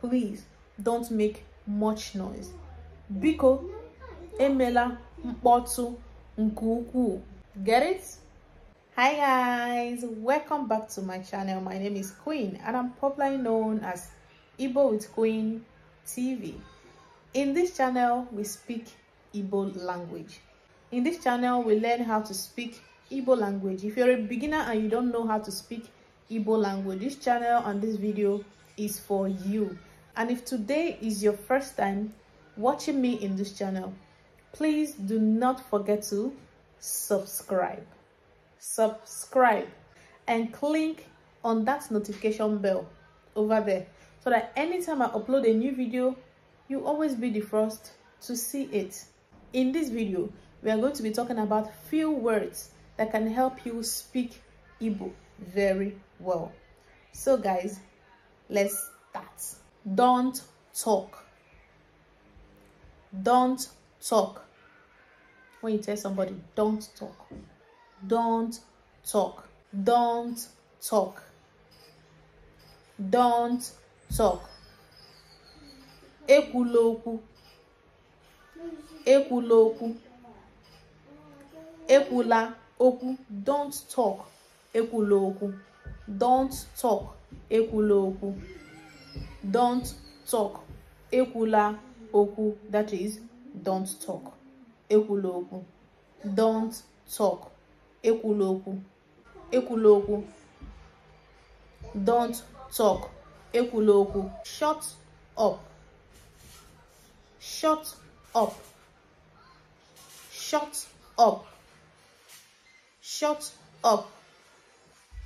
please don't make much noise mm. biko emela mkpọtụ Nguku, get it hi guys welcome back to my channel my name is queen and i'm popularly known as Ibo with queen tv in this channel we speak Ibo language in this channel we learn how to speak Ibo language if you're a beginner and you don't know how to speak Ibo language this channel and this video is for you and if today is your first time watching me in this channel, please do not forget to subscribe. Subscribe and click on that notification bell over there so that anytime I upload a new video, you always be the first to see it. In this video, we are going to be talking about few words that can help you speak Igbo very well. So guys, let's start. Don't talk. Don't talk. When you tell somebody, don't talk. Don't talk. Don't talk. Don't talk. Ekwula okwu. Ekwula okwu. Ekwula okwu. Don't talk. Ekwula okwu. Don't talk. Ekwula okwu don't talk ekwula okwu that is don't talk ekwula okwu don't talk ekwula okwu ekwula okwu don't talk ekwula okwu shut up shut up shut up shut up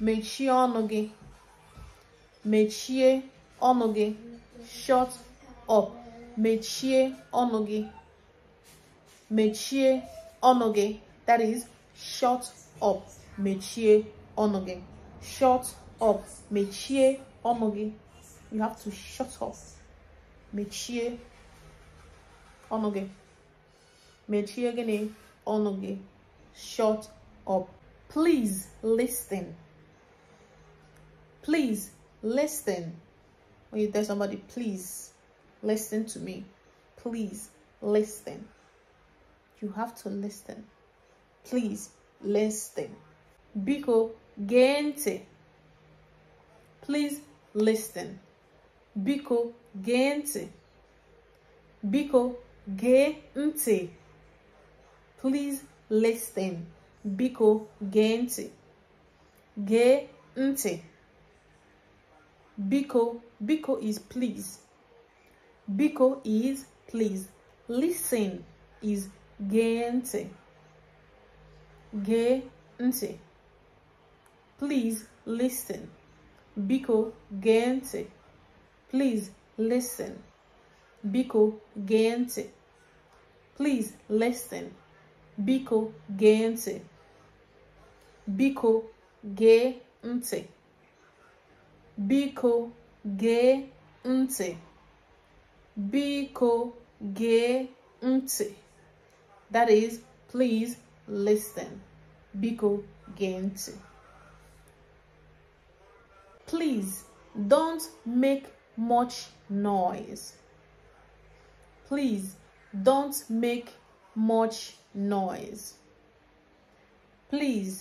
mechie ọnụ gị mechie onoge shut up mechie onoge Metier mechie that is shut up mechie onoge shut up mechie onoge you have to shut up mechie onoge Metier mechie gịnị shut up please listen please listen when you tell somebody, please listen to me. Please listen. You have to listen. Please listen. Biko gente. Please listen. Biko gente. Biko gente. Please listen. Biko gente. Gente. Biko Biko is please. Biko is please. Listen is gente. Gente. Please listen. Biko gente. Please listen. Biko gente. Please listen. Biko gente. Biko gente. Biko gente gee ntị biko gee ntị that is please listen biko gee ntị please don't make much noise please don't make much noise please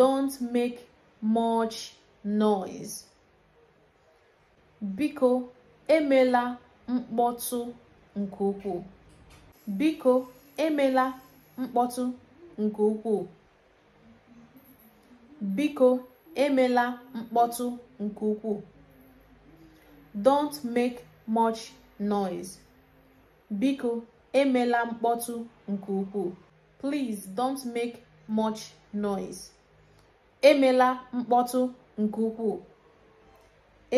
don't make much noise biko emela mkpọtụ nke ukwuu biko emela mkpọtụ nke ukwuu biko emela mkpọtụ nke ukwuu don't make much noise biko emela mkpọtụ nke ukwuu please don't make much noise emela mkpọtụ nke ukwuu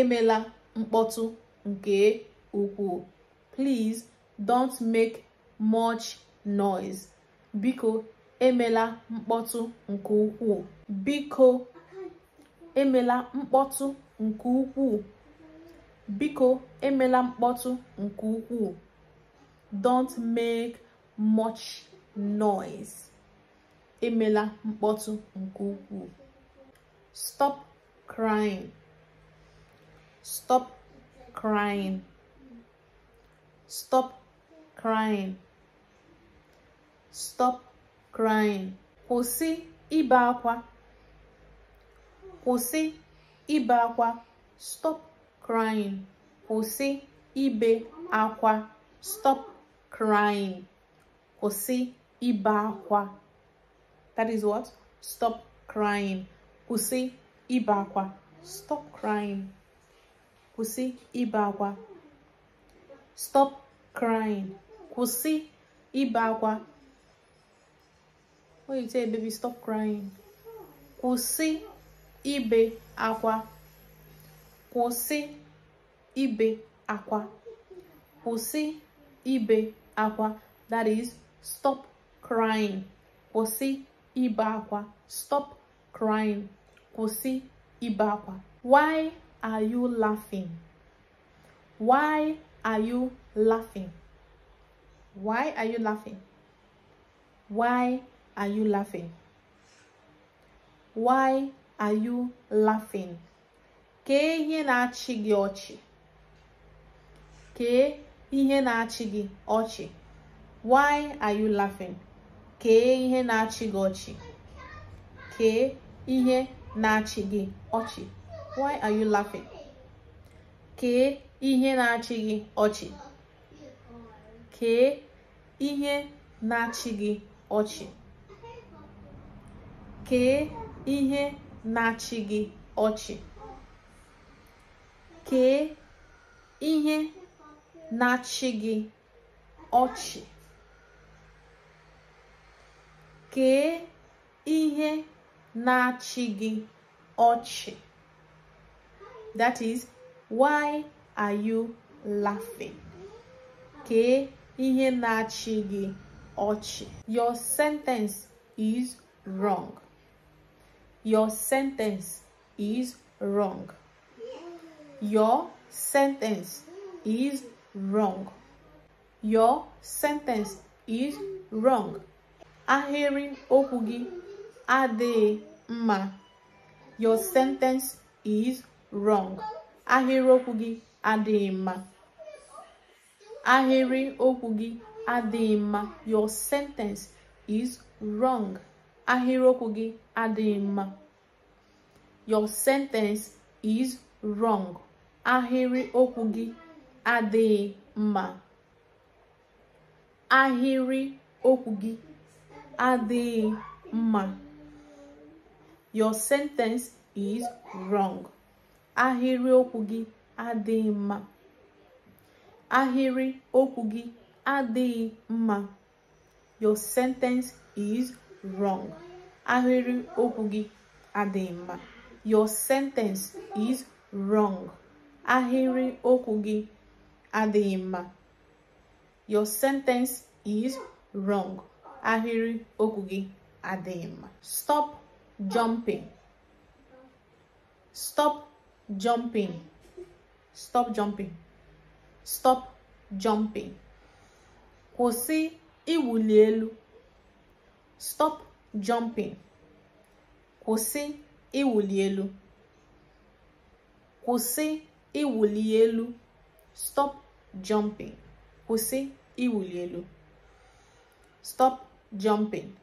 emela mkpọtụ nke ukwuu please don't make much noise biko emela mkpọtụ nke ukwuu biko emela mkpọtụ nke ukwuu biko emela mkpọtụ nke ukwuu don't make much noise emela mkpọtụ nke ukwuu stop crying Stop crying. Stop crying. Stop crying. Kwụsị ibe akwa. Kwụsị ibe akwa. Stop crying. Kwụsị ibe akwa. Stop crying. Kwụsị ibe akwa. That is what? Stop crying. Kwụsị ibe akwa. Stop crying. kwụsị ibe akwa stop crying kwụsị ibe akwa baby stop crying kwụsị ibe akwa kwụsị ibe akwa kwụsị ibe akwa that is stop crying kwụsị ibe akwa stop crying kwụsị ibe akwa why are you laughing? Why are you laughing? Why are you laughing? Why are you laughing? Why are you laughing? Kee ihe na-achị gị ọchị. Kee ihe na-achị gị ọchị. Why are you laughing? Kee ihe na-achị gị ọchị. Kee ihe na-achị gị ọchị. Why are you laughing? Kee ihe na-achị gị ọchị. Kee ihe na-achị gị ọchị. Kee ihe na-achị gị ọchị. Kee ihe na-achị gị ọchị. Kee ihe na-achị gị ọchị. That is, why are you laughing? Okay, ihe na-achị gị Your sentence is wrong. Your sentence is wrong. Your sentence is wrong. Your sentence is wrong. Ahịrị okugi gị mma. Your sentence is wrong ahịrịokwu gị adịghị mma ahịrị okwu gị adịghị mma your sentence is wrong ahịrịokwu gị adịghị mma your sentence is wrong ahịrị okwu gị adịghị mma ahịrị okwu gị adịghị mma your sentence is wrong ahịrị okwu gị adịghị mma ahịrị okwu gị adịghị mma your sentence is wrong ahịrị okwu gị adịghị mma your sentence is wrong ahịrị okwu gị adịghị mma your sentence is wrong ahịrị okwu gị adịghị mma stop jumping stop jumping stop jumping stop jumping kwụsị iwuli elu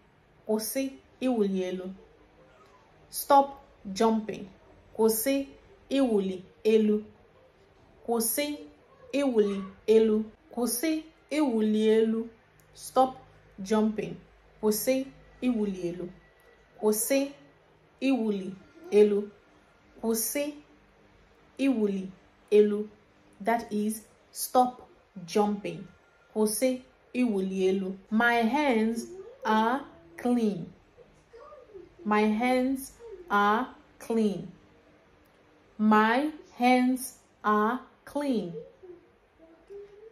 stop jumping kwụsị iwuli elu kwụsị iwuli elu kwụsị iwuli elu stop jumping kwụsị iwuli elu kwụsị iwuli elu kwụsị iwuli elu that is stop jumping kwụsị iwuli elu my hands are clean my hands are clean My hands are clean.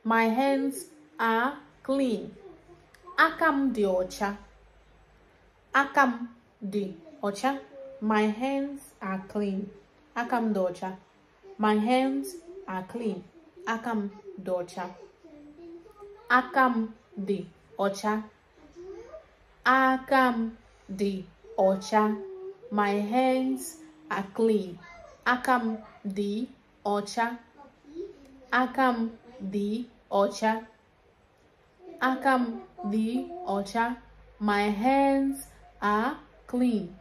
My hands are clean. Akam di ocha. Akam di ocha. My hands are clean. Akam docha. My hands are clean. Akam docha. Akam di ocha. Akam di ocha. My hands are clean. Akam di ocha. Akam di ocha. Akam di ocha. My hands are clean.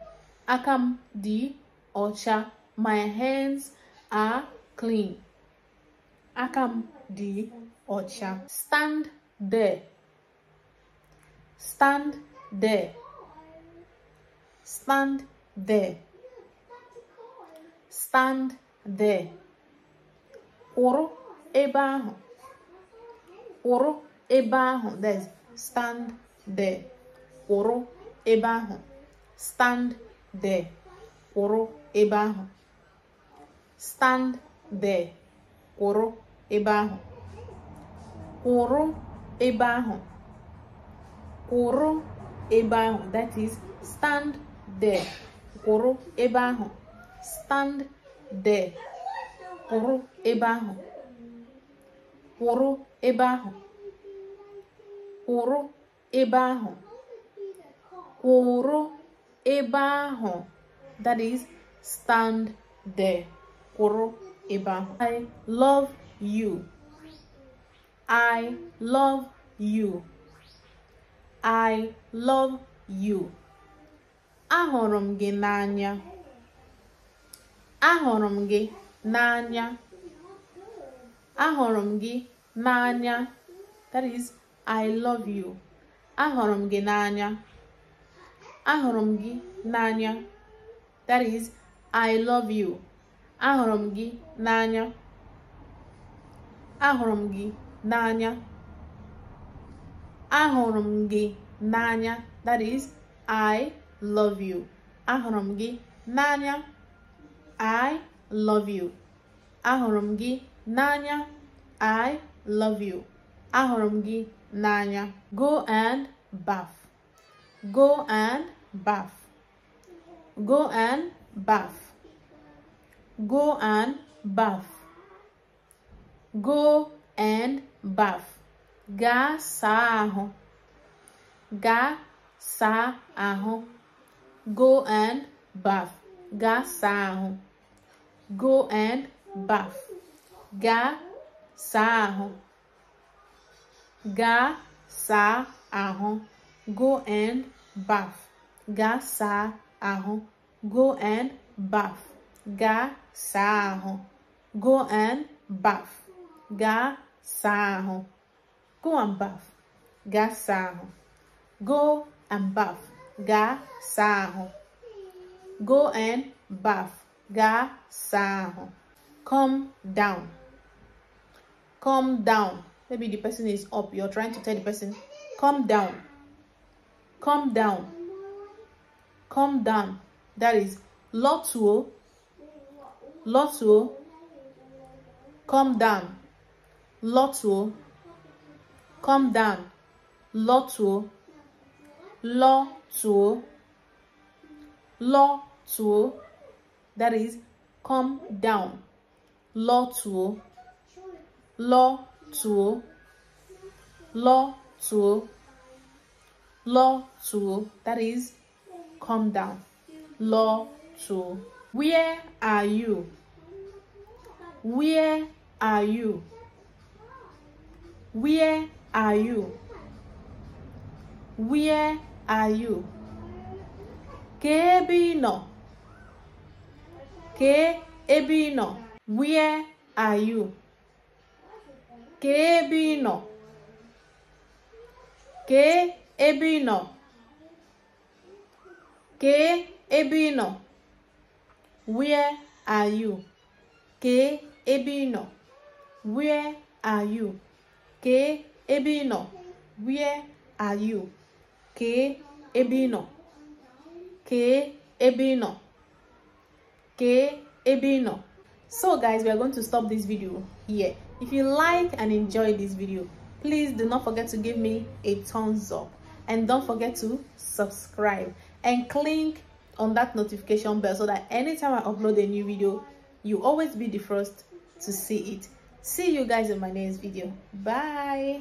Akam di ocha. My hands are clean. Akam di ocha. Stand there. Stand there. Stand there stand there ụrụ ebe ahụ ụrụ ebe ahụ there's stand there ụrụ ebe ahụ stand there ụrụ ebe ahụ stand there ụrụ ebe ahụ ụrụ ebe ahụ ụrụ ebe ahụ that is stand there ụrụ ebe ahụ stand de kwụrụ ebe ahụ kwụrụ ebe ahụ kwụrụ ebe ahụ kwụrụ ebe ahụ that is stand there kwụrụ ebe ahụ i love you i love you i love you ahụrụ m gị n'anya ahụrụ m gị n'anya ahụrụ m gị n'anya that is i love you ahụrụ m gị n'anya ahụrụ m gị n'anya that is i love you ahụrụ m gị n'anya ahụrụ m gị n'anya ahụrụ m gị n'anya that is i love you ahụrụ m gị n'anya I love you. Ahụrụ m gị n'anya. I love you. Ahụrụ m gị n'anya. Go and bath. Go and bath. Go and bath. Go and bath. Go and bath. saa ahụ. Gaa Gaa saa ahụ. Go and buff, Ga saa Ga saa Go and buff, Ga saa Go and buff, Ga saa Go and buff, Ga saa Go and buff, Ga saa Go and buff, Ga saa Go and buff gaa saa come down come down maybe the person is up you're trying to tell the person come down come down come down that is lọtuo lọtuo come down lọtuo come down lọtuo lọtuo lọtuo. that is come down lọ tụọ lọ tụọ lọ tụọ lọ tụọ that is come down lọ tụọ where are you where are you where are you where are you ka nọ Ke ebe ị nọ? Where are you? Ke ebe ị nọ? Ke ebe ị nọ? Ke ebe ị nọ? Where are you? Ke ebe ị nọ? Where are you? Ke ebe ị nọ? Where are you? Ke ebe ị nọ? Ke ebe ị nọ? Okay, ebino so guys we are going to stop this video here if you like and enjoy this video please do not forget to give me a thumbs up and don't forget to subscribe and click on that notification bell so that anytime i upload a new video you always be the first to see it see you guys in my next video bye